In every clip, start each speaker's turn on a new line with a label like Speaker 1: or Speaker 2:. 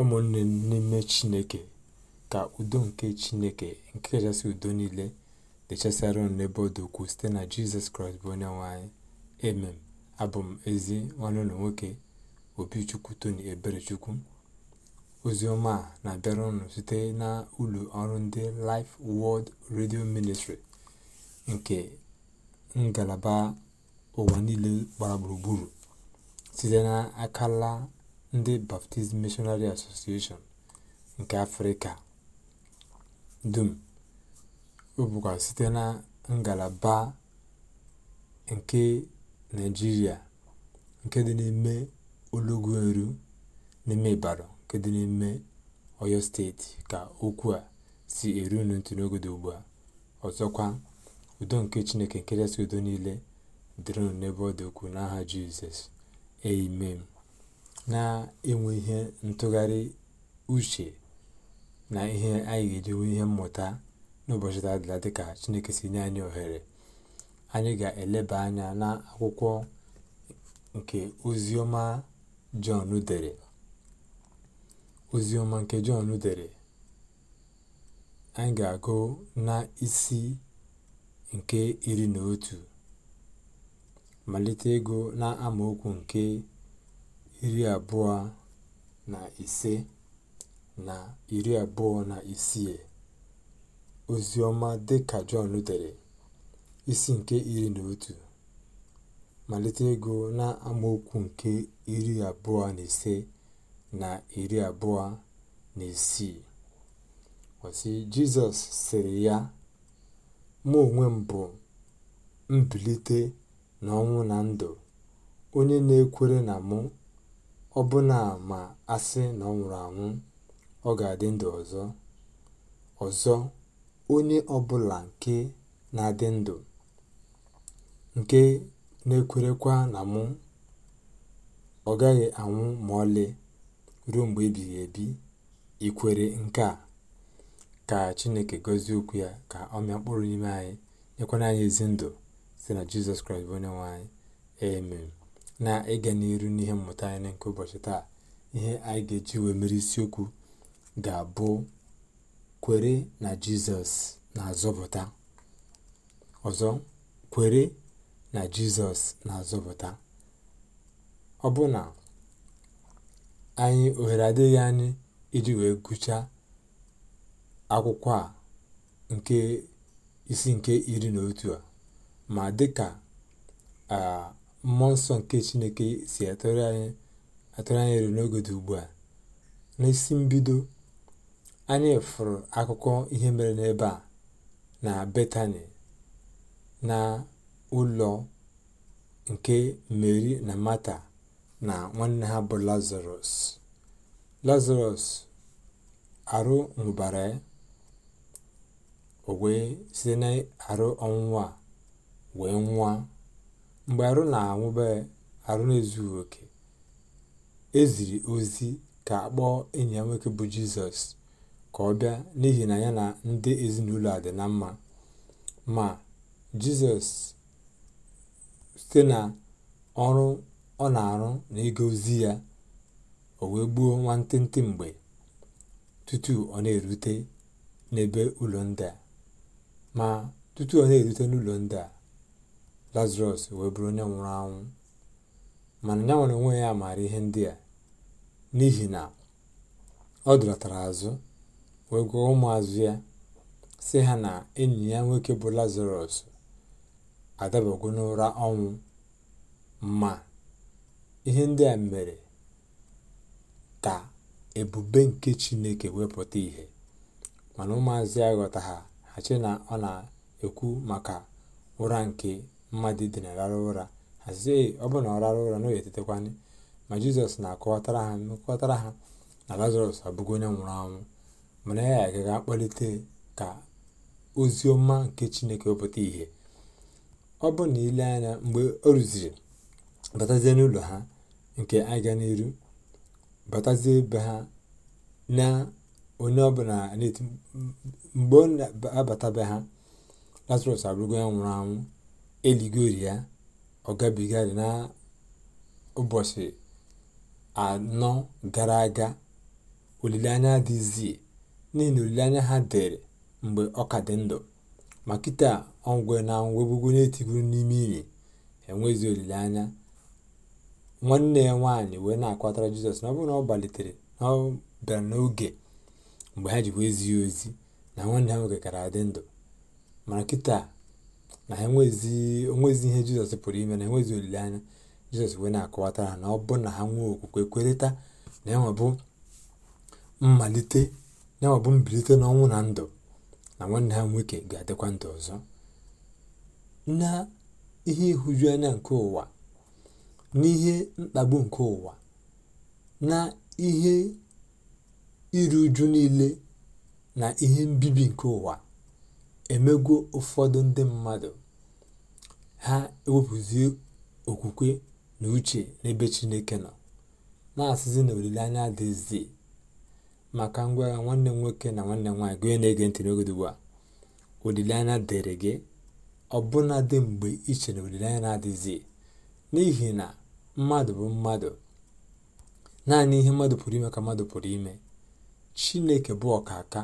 Speaker 1: ụmụnne n'ime chineke ka udo nke chineke nke kachasị udo niile dị chasịara unu n'ebe ọ dị site na jizọs kraịst bụ onye nwanyị emem abụ m ezi nwanne unu nwoke obichukwu tony eberechukwu oziọma a na-abịara site na ụlọ ọrụ ndị Life wọld redio Ministry nke ngalaba ụwa niile gbara gburugburu site na akala ndị baptist missionary association nke afrịka dum ọ bụkwa site na ngalaba nke naịjirịa nke dị n'ime eru n'ime ịbàdàn nke dị n'ime ọyọ steeti ka okwu a si eru n'otu n'oge ugbu a ọzọkwa udo nke chineke nke jesi udo niile dịrịnụ n'ebe ọ dị ukwuu n'aha jizọs amen na-enwe ihe ntụgharị uche na ihe anyị ga-eji nwee ihe mmụta n'ụbọchị tadịla dịka chineke si nye anyị ohere anyị ga-eleba anya na akwụkwọ nke ozioma jọn dere ozioma nke jọn dere anyị ga-agụ na isi nke iri na otu malite ego na amaokwu nke iri abụọ na ise na iri abụọ na isii dị ka john dere isi nke iri na otu malite na-amaokwu nke iri abụọ na ise na iri abụọ na isii ọ jizọs sịrị ya mụ onwe m bụ mbilite n'ọnwụ na ndụ onye na-ekwere na mụ Ọbụna ma a sị na ọ nwụrụ anwụ, ọ ga-adị ndụ ọzọ. Ọzọ, onye ọbụla nke na-adị ndụ, nke na-ekwerekwa na mụ, ọ gaghị anwụ ma ọlị, ruo mgbe ebighị ebi, ikwere nke a? Ka Chineke gọzie okwu ya, ka ọ mịa mkpụrụ n'ime anyị, nyekwana anyị ezi ndụ site na Jizọs Kraịst bụ nwe anyị. Amen. na ị ịga n'iru n'ihe mmụta anyị nke ụbọchị taa ihe anyị ga-eji wee mere isiokwu ga-abụ kwere na jizọs na-azọpụta ọzọ kwere na jizọs na-azọpụta ọ bụ na anyị ohere adịghị anyị iji wee gụchaa akwụkwọ a nke isi nke iri na otu a ma dị dịka ah, mmụọ nsọ nke chineke si atụrụ anyị atụrụ anyị n'oge dị ugbu a n'isi mbido anyị fụrụ akụkọ ihe mere n'ebe a na betani na ụlọ nke meri na mata na nwanne ha bụ lazarus lazarus arụ nwụbara o wee site n'arụ ọnwụnwa wee nwụọ mgbe arụ na anwụbe arụ na-ezughị oke eziri ozi ka akpọọ enyi ya nwoke bụ jizọs ka ọ bịa n'ihi na ya na ndị ezinụlọ a dị na mma ma jizọs site na ọrụ ọ na-arụ na ịga ozi ya o wee gbuo nwantịntị mgbe tutu ọ na-erute n'ebe ụlọ ndị a ma tutu ọ na-erute n'ụlọ ndị a lazarus wee bụrụ onye nwụrụ anwụ mana ya nwere onwe ya maara ihe ndị a n'ihi na ọ dọlatara azụ wee gwa ụmụazụ ya si ha na enyi ya nwoke bụ lazarus adabago n'ụra ọnwụ ma ihe ndị a mere ka ebube nke chineke wepụta ihe mana ụmụazụ ya ghọta ha ha chi na ọ na-ekwu maka ụra nke mmadụ dị rahụ ụra hazie sị ọ bụrụ na ọ rara ụra na ọ ma jizọs na-akọwatara ha mekọtara ha na lazarus abụghị onye nwụrụ anwụ mana ya agaga akpọlite ka ozi ọma nke chineke wepụta ìhè ọ bụ na ile anya mgbe o rụziri batazie n'ụlọ ha nke aga n'iru batazie ebe ha na onye ọbụla mgbe ọ na-abata be ha lazarus abụrụgo onye nwụrụ anwụ eligori ya ọ gabigarị n'ụbọchị anọ gara aga olileanya adịzie n'ihi na olileanya ha dere mgbe ọ ka dị ndụ ma kịta ọgwe na ngwegwego na-etigoro n'ime ili enwezi olileanya nwanne ya nwaanyị wee na-akwatara jizọs na ọ bụrụ na ọ gbalitere na ọ bịara n'oge mgbe ha ji wee zie ozi na nwanne ha nwoke kara adị ndụ mara kịta na ha onwezi ihe jizọs pụrụ ime na enwezi olileanya jizọs wee na-akọwata na ọ bụ na ha nwee okwukwe kwerịta na enwebụ mmalite na enwebụ mbilite n'ọnwụ na ndụ na nwanne ha nwoke ga-adịkwa ndụ ọzọ na ihe ịhụju anya nke ụwa n'ihe mkpagbu nke ụwa na ihe iru uju niile na ihe mbibi nke ụwa emegwo ụfọdụ ndị mmadụ ha ewepụzie okwukwe na uche n'ebe chineke nọ na-asịzi na olileanya adịzi maka ngwagha nwanne m nwoke na nwanne m nwaanyị gụnye na-ege ntị n'ogodo ugbu a olileanya dịrị gị ọbụna dị mgbe iche che na olileanya na-adịzi n'ihi na mmadụ bụ mmadụ naanị ihe mmadụ pụrụ ime ka mmadụ pụrụ ime chineke bụ ọkaka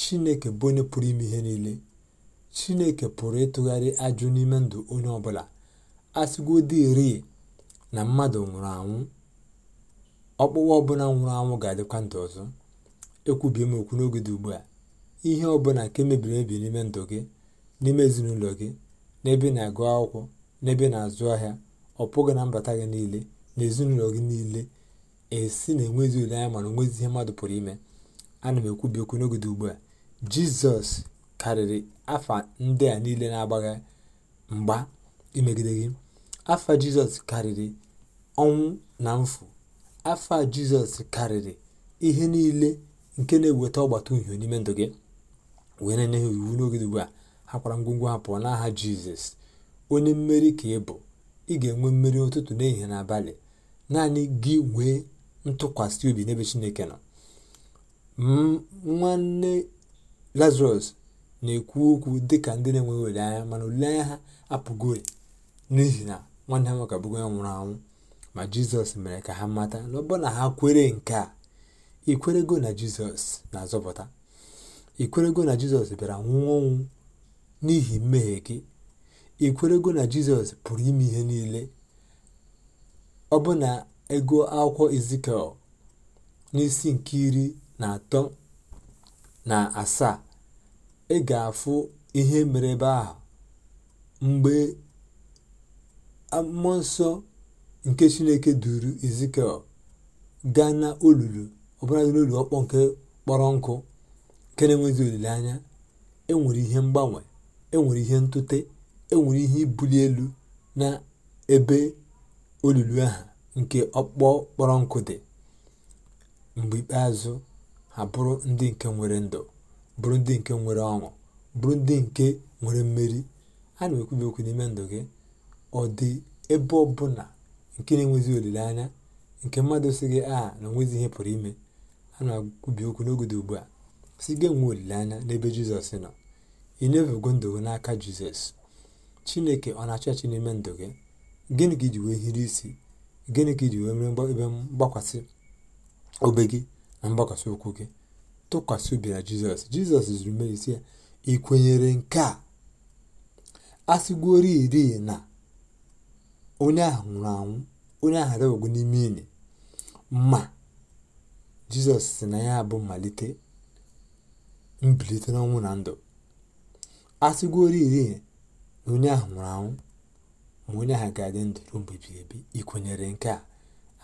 Speaker 1: Chineke bụ onye pụrụ ime ihe niile Chineke pụrụ ịtụgharị ajụ n'ime ndụ onye ọbụla a sịgodịrị na mmadụ nwụrụ anwụ ọkpụkpụ ọbụla nwụrụ anwụ ga-adịkwa ndụ ọzọ ekwubie m okwu n'oge dị ugbu a ihe ọbụla nke mebiri emebi n'ime ndụ gị n'ime ezinụlọ gị n'ebe na-agụ akwụkwọ n'ebe na-azụ ahịa ọ pụghị na mbata gị niile na ezinụlọ gị niile esi na enwezi anya mana onwezi ihe mmadụ pụrụ ime Ana m ekwubi okwu n'ogede ugbu a, Jizọs karịrị afa ndị a niile na agbagha mgba imegide gị. Afa Jizọs karịrị ọnwụ na mfụ Afa Jizọs karịrị ihe niile nke na-eweta ọgbata uhie n'ime ndụ gị. wee na-enye ha iwu n'oge ugbu a hakwara ngwongwo ha pụọ n'aha Jizọs onye mmeri ka ị bụ ị ga-enwe mmeri ụtụtụ n'ehihie na abalị naanị gị nwee ntụkwasị obi n'ebe Chineke nọ nwanne lazarus na-ekwu okwu dị ka ndị na-enweghị anya mana anya ha apụgori n'ihi na nwanne ha nwoke abụgo ya nwụrụ anwụ ma jizọs mere ka ha mata na na ha kwere nke a ikwerego na jizọs na-azọpụta ikwerego na jizọs bịara nwụọ n'ihi mmehie gị ikwerego na jizọs pụrụ ime ihe niile ọbụna ego akwụkwọ izikel n'isi nke iri na atọ na asaa ị ga-afụ ihe mere ebe ahụ mgbe mmụọ nsọ nke chineke duru ezikiel gaa na olulu ọbụladị n'olulu ọkpọ nke kpọrọ nkụ nke na-enweghị olileanya enwere ihe mgbanwe enwere ihe ntute enwere ihe ibuli elu na ebe olulu ahụ nke ọkpọ kpọrọ nkụ dị mgbe ikpeazụ ha bụrụ ndị nke nwere ndụ bụrụ ndị nke nwere ọṅụ bụrụ ndị nke nwere mmeri a na-ekwubi okwu n'ime ndụ gị ọ dị ebe ọ nke na-enwezi olileanya nke mmadụ si gị aha na onwezi ihe pụrụ ime a na-akwubi okwu n'oge dị ugbu a si gị nwee olileanya n'ebe jizọs nọ ị nyefego ndụ gị n'aka jizọs chineke ọ na-achọ achị n'ime ndụ gị gịnị ka iji wee hiri isi gịnị ka iji wee mere ebe mgbakwasị obe gị na mgbakwasị ụkwụ gị tụkwasị obi na jizọs jizọs zuru meri ya ị kwenyere nke a asịgwori iri na onye ahụ nwụrụ anwụ onye ahụ adọbago n'ime ili ma jizọs si na ya bụ mmalite mbilite n'ọnwụ na ndụ asịgwori iri na onye ahụ nwụrụ anwụ ma onye ahụ ga-adị ndụ ruo mgbe ị nke a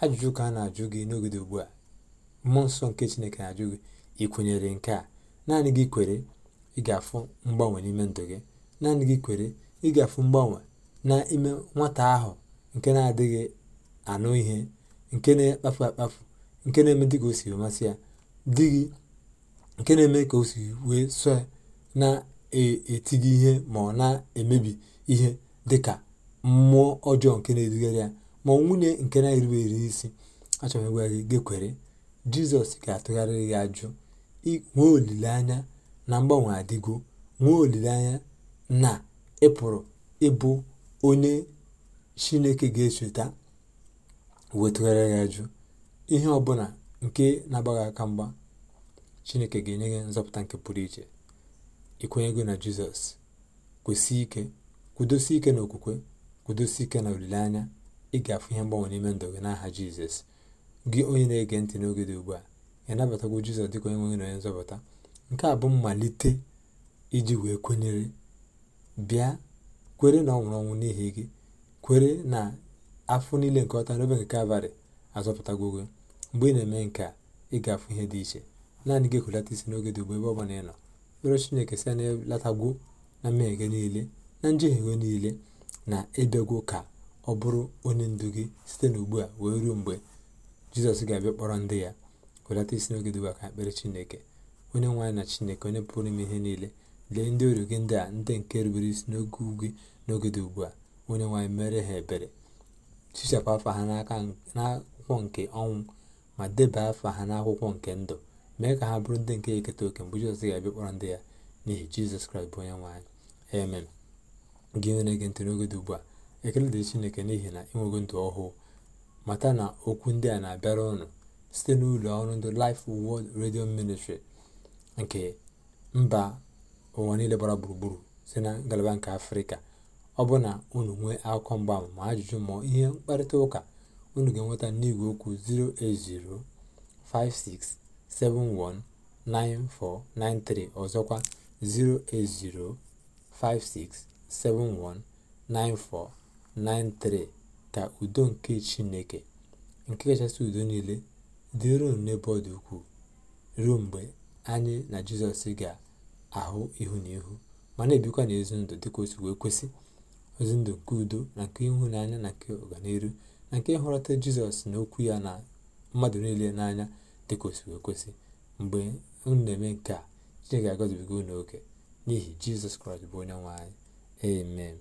Speaker 1: ajụjụ ka a na-ajụ gị n'ogede ugbu a mmụọ nsọ nke chineke na-ajụ gị ị kwenyere nke a naanị gị kwere ị ga-afụ mgbanwe n'ime ndụ gị naanị gị kwere ị ga-afụ mgbanwe nwata ahụ nke na-adịghị anụ ihe nke na-ekpafu akpafu nke na-eme ka o siri masị ya di gị nke na-eme ka o si wee so na-eti gị ihe ma ọ na-emebi ihe dị ka mmụọ ọjọọ nke na-edugara ya ma nwunye nke na-erube eri isi achọrọ gwa gị kwere. jizọs ga-atụgharịrị ya ajụ nwee olileanya na mgbanwe adịgo nwee olileanya na ịpụrụ ịbụ onye chineke ga echeta wee ya ajụ ihe ọbụla nke na-agbaghị aka mgba chineke ga-enye gị nzọpụta nke pụrụ iche ịkwenyego na jizọs kwesị ike kwudosi ike na okwukwe kwudosi ike na olileanya ị ga-afụ ihe mgbanwe n'ime ndụ gị n'aha jizọs gị onye na-ege ntị n'oge dị ugbu a ị nabatagwo jizọs dịka onye nwe na onye nzọpụta nke a bụ mmalite iji wee kwenyere bịa kwere na ọ nwụrụ ọnwụ n'ihi gị kwere na afọ niile nke ọta n'obe nke kalvarị azọpụtago gị mgbe ị na-eme nke a ị ga-afụ ihe dị iche naanị gị ekwulata isi n'oge dị ugbu ebe ọ ị nọ kpere chineke si na ịlatagwo na mmehie gị niile na njehie gị niile na ịbịagwo ka ọ bụrụ onye ndu gị site n'ugbu a wee ruo mgbe jizọs ga-abịa kpọrọ ndị ya welata isi n'oge dịwa ka ekpere chineke onye nwaanyị na chineke onye pụrụ ime ihe niile lee ndị oru gị ndị a ndị nke rubere isi n'oge ugwu n'oge dị ugbu a onye nwaanyị mere ha ebere chichapụ afa ha n'akwụkwọ nke ọnwụ ma deba afa ha n'akwụkwọ nke ndụ mee ka ha bụrụ ndị nke eketa oke mgbe jizọs ga-abịa kpọrọ ndị ya n'ihi jizọs kraịst bụ onye nwaanyị amen gị onye na-ege ntị n'oge dị ugbu a ekele dị chineke n'ihi na ịnwego ndụ ọhụụ mata na okwu ndị a na-abịara ụnụ site n'ụlọ ọrụ ndị Life world Radio Ministry nke mba ụwa niile gbara gburugburu si na ngalaba nke afrịka ọ bụ na unu nwee akụkọ mgbam ma ajụjụ ma ihe mkparịta ụka unu ga-enweta n'igwe okwu 08056719493 ọzọkwa 08056719493 ka udo nke chineke nke kachasị udo niile dị ruo n'ebe ọ dị ukwuu ruo mgbe anyị na jizọs ga-ahụ ihu na ihu ma na-ebikwa n'ezi ndụ dịka otu wee kwesị ozi ndụ nke udo na nke ịhụnanya na nke ọganiru na nke ịhụrọta jizọs na okwu ya na mmadụ niile n'anya dịka otu wee kwesị mgbe unu na-eme nke a chineke ga-agọzibiga n'oge n'ihi jizọs kraịst bụ onye nwe anyị amen